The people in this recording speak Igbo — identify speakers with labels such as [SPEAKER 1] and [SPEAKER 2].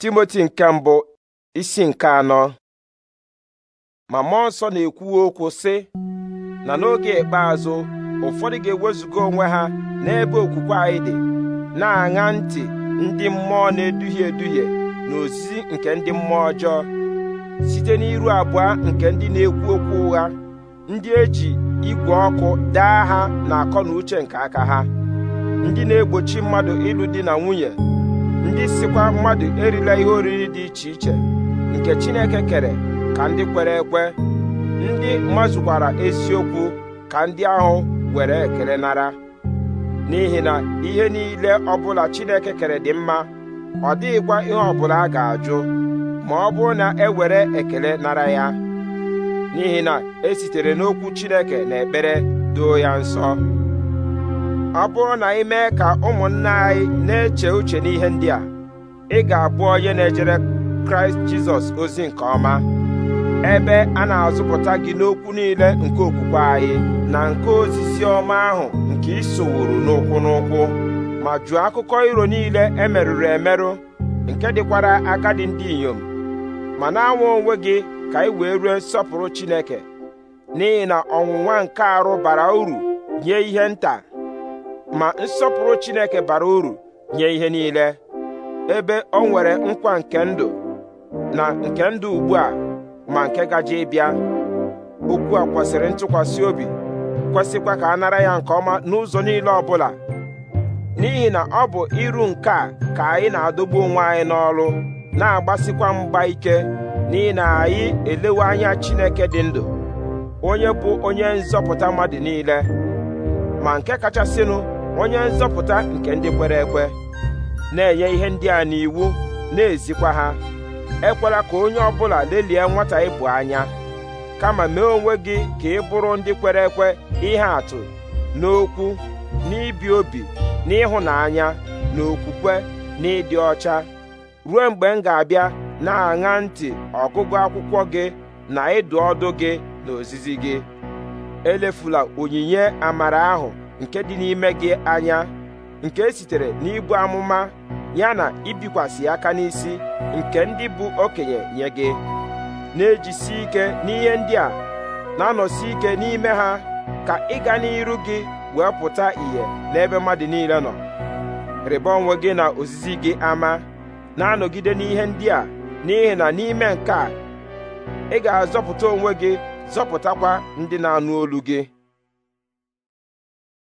[SPEAKER 1] timoti nke mbụ isi nke anọ ma mmụọ nsọ na-ekwu okwu sị na n'oge ikpeazụ ụfọdụ ga-ewezuga onwe ha n'ebe okwukwe anyị dị na-aṅa ntị ndị mmụọ na-eduhie eduhie na ozizi nke ndị mmụọ ọjọọ site n'iru abụọ nke ndị na-ekwu okwu ụgha ndị eji igwe ọkụ daa ha na akọ na uche nke aka ha ndị na-egbochi mmadụ ịlụ di na nwunye ndị sikwa mmadụ erila ihe oriri dị iche iche nke Chineke kere ka ndị kwere ekwe ndị mazukwara eziokwu ka ndị ahụ were ekele nara n'ihi na ihe niile ọbụla Chineke kere dị mma ọ dịghịkwa ihe ọbụla a ga-ajụ ma ọ bụrụ na e were ekele nara ya n'ihi na e sitere n'okwu Chineke na ekpere doo ya nsọ ọ bụrụ na ị mee ka ụmụnna anyị na-eche uche n'ihe ndị a ị ga-abụ onye na-ejere kraịst jizọs ozi nke ọma ebe a na-azụpụta gị n'okwu niile nke okwukwe anyị na nke ozizi ọma ahụ nke isowuru n'ụkwụ n'ụkwụ ma jụọ akụkọ iro niile emerụrụ emerụ nke dịkwara agadi ndị inyom ma na-anwa onwe gị ka ị wee rue nsọpụrụ Chineke n'ihi na ọnwụnwa nke arụ bara uru nye ihe nta ma nsọpụrụ Chineke bara uru nye ihe niile ebe ọ nwere nkwa nke ndụ na nke ndụ ugbu a ma nke gaje ịbịa okwu a kwesịrị ntụkwasị obi kwesịkwa ka a nara ya nke ọma n'ụzọ niile ọbụla n'ihi na ọ bụ iru nke a ka anyị na-adọgbu onwe anyị n'ọrụ na-agbasikwa mgba ike n'ihi na anyị elewe anya Chineke dị ndụ onye bụ onye nzọpụta mmadụ niile ma nke kachasịnụ onye nzọpụta nke ndị kwere ekwe na-enye ihe ndị a n'iwu na-ezikwa ha ekwela ka onye ọ bụla lelie nwata ịbụ anya kama mee onwe gị ka ị bụrụ ndị kwere ekwe ihe atụ n'okwu n'ibi obi n'ịhụnanya na okwukwe na ịdị ọcha ruo mgbe m ga-abịa na-aṅa ntị ọgụgụ akwụkwọ gị na ịdụ ọdụ gị na ozizi gị elefula onyinye amara ahụ nke dị n'ime gị anya nke e sitere n'ibu amụma ya na ibikwasị aka n'isi nke ndị bụ okenye nye gị na-ejisi ike n'ihe ndị a na-anọsi ike n'ime ha ka ịga n'iru gị wee pụta ìhè n'ebe mmadụ niile nọ rịba onwe gị na ozizi gị ama na-anọgide n'ihe ndị a n'ihi na n'ime nke a ị ga-azọpụta onwe gị zọpụtakwa ndị na-anụ olu gị